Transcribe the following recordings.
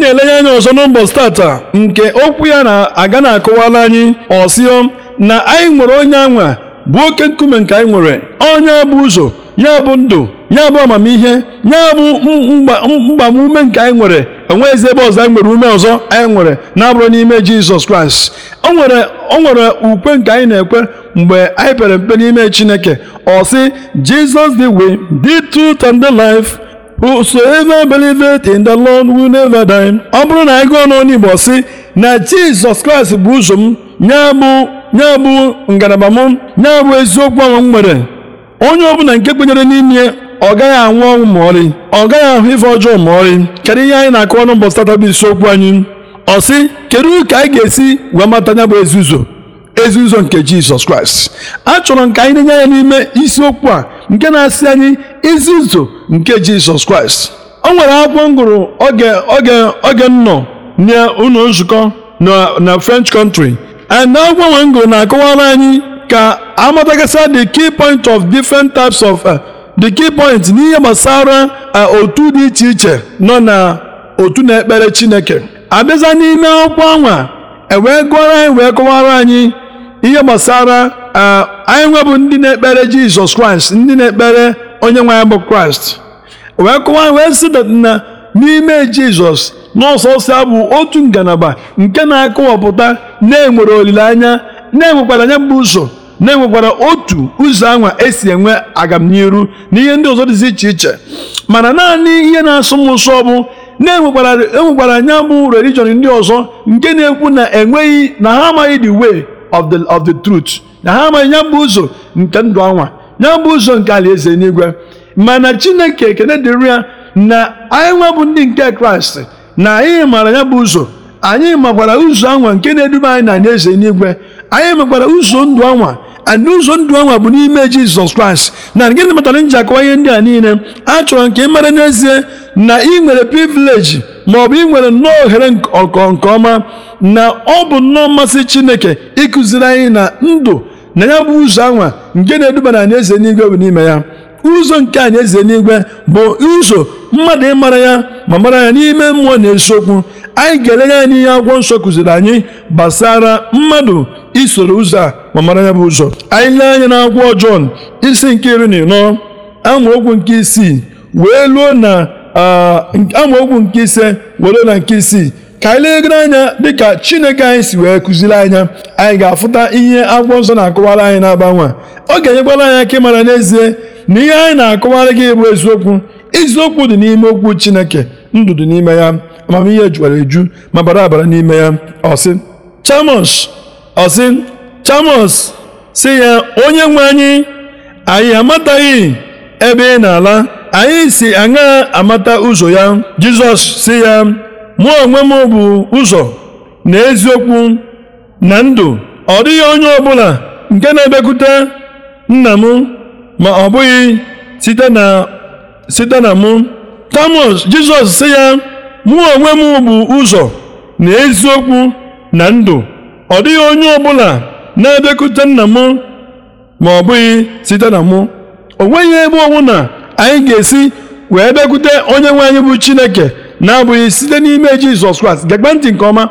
na-elenye anya ọzọ n'ụbọchị tata nke okwu ya na-aga na akụwala anyị ọsịọ na anyị nwere onye anwa bụ oke nkume nke anyị nwere onye bụ ụzọ ya bụ ndụ ya bụ amamihe ya bụ mgbamume nke anyị nwere enweghịzi ebe ọzọ anyị nwere ume ọzọ anyị nwere na-abụrụ n'ime Jizọs Kraịst o nwere o nwere ukwe nke anyị na-ekwe mgbe anyị pere mpe n'ime Chineke ọ sị Jesus the way the truth and the life whosoever believeth in the Lord will never die ọ bụrụ na anyị gụọ n'ọnụ Igbo si na Jizọs Kraịst bụ ụzọ m ya bụ bụ ngalaba m nya bụ eziokwu ahụ m nwere onye ọbụla nke kwenyere n'ime ọ gaghị anwụ ọnwụ ma ọrị ọ gaghị ahụ ife ọjọọ ma ọrị kedu ihe anyị na-akụ ọnụ mbọsị tata bụ isiokwu anyị ọ sị kedu ka anyị ga-esi wee mata nya bụ ezi ụzọ ezi ụzọ nke Jizọs Kraịst achọrọ m ka anyị na-enye ya n'ime isiokwu a nke na-asị anyị izi nke jizọs kraịst o nwere akwụkwọ m gụrụ oge oge oge nọ n'ụlọ nzukọ na french country and akwụkwọ nwe m na-akọwara anyị ka amatagasa the key point of different types of uh, the key point n'ihe gbasara uh, otu dị iche iche nọ na otu na-ekpere chineke abịaza n'ime akwụkwọ anwa ewee gụọrọ anyị wee kọwara anyị ihe gbasara e, anyị nwebụ ndị na-ekpere jizọs kraịst ndị na-ekpere onye nwe anyị bụ kraịst wee kụwa wee sị na n'ime jizọs n'ọsọsọ bụ otu ngalaba nke na-akọwapụta na-enwere olileanya na-enwekwara anya bụ ụzọ na-enwekwara otu ụzọ anwa esi enwe agamniru na ihe ndị ọzọ dịzi iche iche mana naanị ihe na-asọ m nsọ bụ na-enwekwara anya bụ religion ndị ọzọ nke na-ekwu na enweghị na ha amaghị the way of the of the truth na ha amaghị ya bụ ụzọ nke ndụ anwa ya bụ ụzọ nke alaeze n'igwe mana chineke ekene dịrị ya na anyị bụ ndị nke kraịst na anyị maara ya bụ ụzọ anyị makwara ụzọ anwa nke na-eduba anyị na alaeze n'igwe anyị makwara ụzọ ndụ anwa and ụzọ ndụ anwa bụ n'ime jizọs kraịst na gịnị matara nji akọwa ihe ndị a niile achọrọ nke ị mara n'ezie na ị nwere privileji maọbụ ị nwere nnọọ ohere ọkọ nke ọma na ọ bụ nnọọ mmasị chineke ịkụziri anyị na ndụ na ya bụ ụzọ anwa nke na-eduba na eze n'igwe bụ n'ime ya ụzọ nke anị eze n'igwe bụ ụzọ mmadụ ịmara ya ma mara ya n'ime mmụọ na eziokwu anyị ga-elenye anyị n'ihe akwụkwọ nsọ kụziri anyị gbasara mmadụ isoro ụzọ a ma mara ya bụ ụzọ anyị lee anya na akwụkwọ Jọn isi nke iri na ịnọ amaokwu nke isii wee luo na amaokwu nke ise were na nke isii ka anyị legoro anya dịka chineke anyị si wee kụziri anya anyị ga-afụta ihe akwụkwọ nsọ na-akọwara anyị na-agbanwe ọ ga-enyekwara anyị aka ịmara n'ezie na ihe anyị na-akọwara gị bụ eziokwu eziokwu dị n'ime okwu chineke ndụ dị n'ime ya amamihe juwara eju ma bara abara n'ime ya ọsị chamos ọsị chamos si ya onye nwe anyị anyị amataghị ebe ị na-ala anyị si aṅa amata ụzọ ya jizọs si ya mụ onwe m bụ ụzọ na eziokwu na ndụ ọ dịghị onye ọbụla nke na-ebekwute nna m ma ọ bụghị site na mụ tamus jizọs si ya mụ onwe m bụ ụzọ na eziokwu na ndụ ọ dịghị onye ọbụla na-ebekwute nna m ma ọ bụghị site na mụ o nweghị ebe ọbụla anyị ga-esi wee bịakwute onye nwe anyị bụ chineke na-abụghị site n'ime jizọs kraịst gegbe ntị nke ọma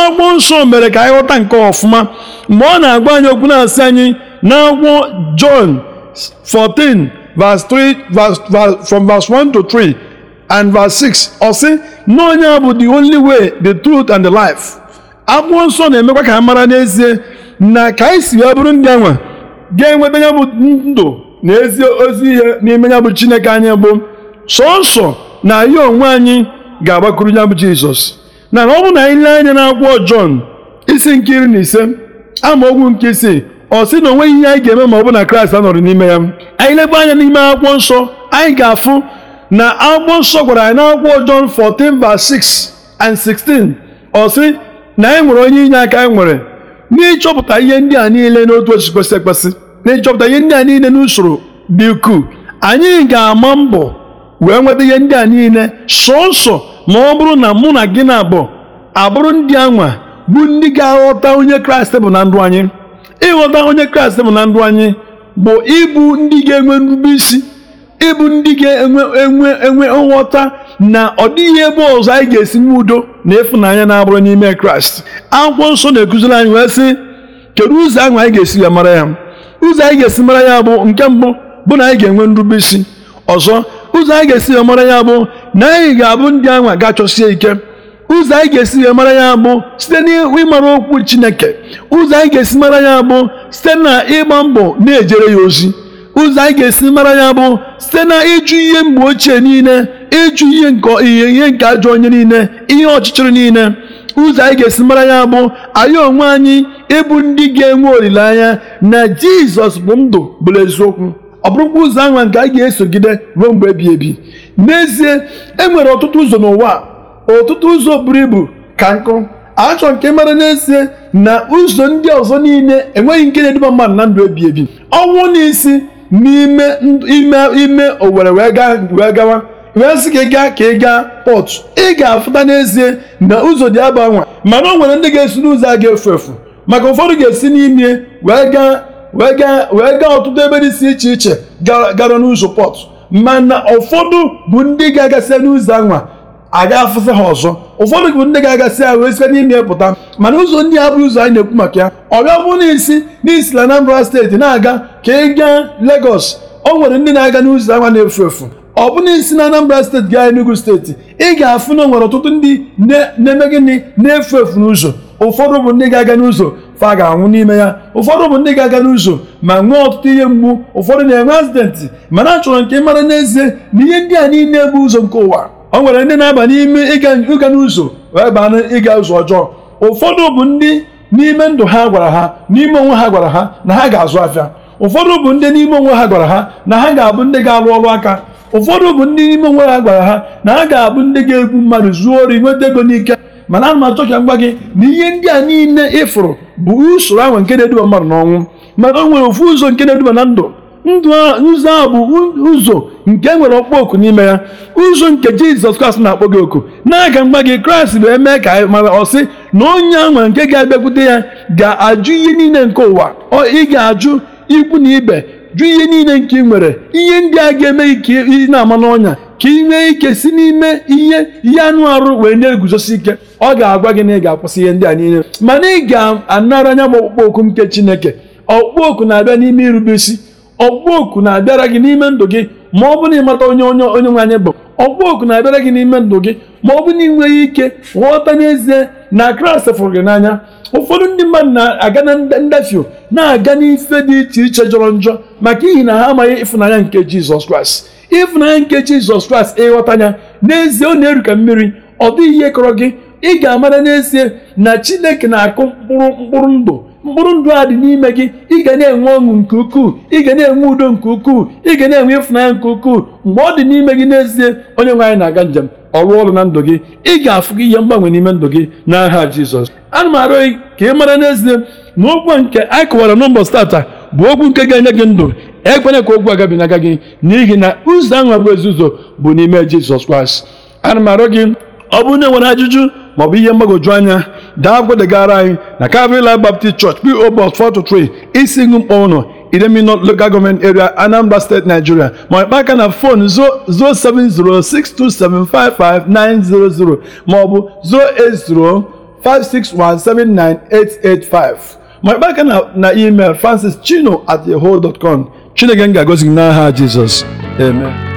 agwọ nsọ mere ka anyị ghọta nke ọfụma mgbe ọ na-agwa anyị okwu na-asị anyị na John 14 verse 3 from verse 1 to 3 and 6 ọ sị na onye bụ the only way the truth and the life nsọ na-emekwa ka ha mara n'ezie na ka anyị si wee bụrụ ndị anwa ga-enweta ya ndụ na ezi ozi ihe n'ime ya bụ Chineke anyị bụ sọsọ na ya onwe anyị ga agbakwuru ya bụ Jizọs na ọ bụ na anyị lee anya n'akwụkwọ Jọn isi nke iri na ise ama amaokwu nke isii ọ sị na onweghị ihe anyị ga-eme ma ọ bụ na Kraịst anọrọ n'ime ya anyị lebe anya n'ime akwụkwọ nsọ anyị ga-afụ na akwụkwọ nsọ gwara anyị n'akwụkwọ Jọn 14 ba 6 and 16 ọ sị na anyị nwere onye inye aka anyị nwere n'ịchọpụta ihe ndị a niile n'otu otu kwesị ekwesị na-echọpụta ihe ndị a niile n'usoro dị ukwuu anyị ga-ama mbọ wee nweta ihe ndị a niile sọsọ ma ọ bụrụ na mụ na gị na abụ abụrụ ndị anwa bụ ndị ga-aghọta onye kraịst bụ na ndụ anyị ịghọta onye kraịst bụ na ndụ anyị bụ ịbụ ndị ga-enwe nrube isi ịbụ ndị ga-enwe enwe nghọta na ọ dịghị ebe ọzọ anyị ga-esi nwe udo na ịfụnanya na-abụrụ n'ime kraịst akwụkwọ nsọ na-ekuziri anyị wee sị kedu ụzọ ahụ anyị ga-esi ya mara ya ụzọ anyị ga-esi mara ya bụ nke mbụ bụ na anyị ga-enwe nrube isi ọzọ ụzọ anyị ga-esi ya mara ya bụ na anyị ga-abụ ndị anwa ga-achọsie ike ụzọ anyị ga-esi ya mara ya bụ site n'ịmara okwu Chineke ụzọ anyị ga-esi mara ya bụ site na ịgba mbọ na-ejere ya ozi ụzọ anyị ga-esi mara ya bụ site na ịjụ ihe mgbe ochie niile ịjụ ihe nke ihe nke ajọ onye niile ihe ọchịchịrị niile ụzọ anyị ga-esi mara ya bụ anyị onwe anyị ịbụ ndị ga-enwe olileanya na jizọs bụ ndụ bụrụ eziokwu ọ bụrụkwa ụzọ ahụ nke anyị ga-esogide ruo mgbe ebi ebi n'ezie e nwere ọtụtụ ụzọ n'ụwa ọtụtụ ụzọ buru ibu ka nkụ achọ nke mara n'ezie na ụzọ ndị ọzọ niile enweghị nke na-eduba mmadụ na ndụ ebi ebi ọnwụ n'isi n'ime ime owere wee gawa wee sị gị gaa ka ị gaa pọtụ ị ga-afụta n'ezie na ụzọ dị agbanwe mana o nwere ndị ga-esi n'ụzọ a ga-efu efu maka ụfọdụ ga-esi n'ime wee gaa wee gaa wee gaa ọtụtụ ebe dị iche iche gara n'ụzọ pọtụ mana ụfọdụ bụ ndị ga-agasị n'ụzọ anwa aga afụsị ha ọzọ ụfọdụ bụ ndị ga-agasị ha wee site n'ime pụta mana ụzọ ndị a bụ ụzọ anyị na-ekwu maka ya ọ gabụ n'isi n'isi na Anambra steeti na-aga ka ị gaa legos o nwere ndị na-aga n'ụzọ anwa na-efu efu ọ bụna isi na Anambra steeti gaa Enugu steeti ị ga-afụ na nwere ọtụtụ ndị na-eme gịnị na-efu efu n'ụzọ ụfọdụ bụ ndị ga-aga n'ụzọ fa ga-anwụ n'ime ya ụfọdụ bụ ndị ga-aga n'ụzọ ma nwee ọtụtụ ihe mgbu ụfọdụ na-enwe azidentị mana achọrọ nke mara n'ezie na ihe ndị a niile bụ ụzọ nke ụwa o nwere ndị na-aba n'ime ịga n'ụzọ wee baa ịga ụzọ ọjọọ ụfọdụ bụ ndị n'ime ndụ ha gwara ha n'ime onwe ha gwara ha na ha ga-azụ afịa ụfọdụ bụ ndị n'ime onwe ha gwara ha na ha ga-abụ ndị ga-alụ ọrụ aka ụfọdụ bụ ndị n'ime onwe ha gwara ha na ha ga-abụ ndị ga-egbu mmadụ zuo ori nweta ego n'ike mana ana m achọ gị na ihe ndị a niile ịfụrụ bụ usoro ahụ nke na-eduba mmadụ n'ọnwụ maka o nwere ofu ụzọ nke na-eduba na ndụ ndụ ụzọ ahụ bụ ụzọ nke e nwere ọkpọ oku n'ime ya ụzọ nke jizọs kraịst na-akpọ gị oku na-aga mgba gị kraịst bụ eme ka mara ọsị na onye ahụ nke ga-abịakwute ya ga-ajụ ihe niile nke ụwa ị ga-ajụ ikwu na ibe jụ ihe niile nke ị nwere ihe ndị a ga-eme ike ị na-ama n'ọnya ka ị nwee ike si n'ime ihe ihe anụ arụ wee na-eguzosi ike ọ ga-agwa gị na ị ga-akwụsị ihe ndị a niile mana ị ga-anara anya bụ ọkpụkpọ oku nke Chineke ọkpụkpọ oku na-abịa n'ime irube isi ọkpụkpọ oku na-abịara gị n'ime ndụ gị ma ọ bụrụ na ịmata onye onye onye nwe anyị bụ ọkpụkpọ oku na-abịara gị n'ime ndụ gị ma ọ bụ na ị nweghị ike ghọta n'ezie na Kraịst fụrụ gị n'anya ụfọdụ ndị mmadụ na-aga na ndafio na-aga n'ife dị iche iche jọrọ njọ maka ihi na ha amaghị ịfụnanya nke Jizọs Kraịst ịfụnanya nke Jizọs Kraịst ịghọta ya n'ezie ọ na-eru ka mmiri ọ dịghị ihe kọrọ gị ị ga-amara n'ezie na Chineke na-akụ mkpụrụ mkpụrụ ndụ mkpụrụ ndụ a dị n'ime gị ị ga na-enwe ọṅụ nke ukwuu ị ga na-enwe udo nke ukwuu ị ga na-enwe ịfụnanya nke ukwuu mgbe ọ dị n'ime gị n'ezie onye nwe anyị na-aga njem ọrụ ọrụ na ndụ gị ị ga-afụ gị ihe mgbanwe n'ime ndụ gị n'aha Jizọs ana m arụ gị ka ị mara n'ezie na okwu nke anyị kọwara mbọ stata bụ okwu nke ga-enye gị ndụ ekwere ka okwu n'aga gị n'ihi na ụzọ ahụ abụ ezi ụzọ bụ n'ime Jizọs Kraịst ana m arụ gị ọ bụ onye nwere ajụjụ maọbụ ihe mgbagoju anya dagwadegara anyị na Calvary Life Baptist Church PO Box 423 isi ngu mkpọ ụnọ Idemili Local Government Area Anambra State Nigeria ma ịkpa na fon 07062755900 maọbụ 08056179885 ma ịkpa aka na email francis chino at yahoo dot com chineke m ga agozi gị n'aha jizọs amen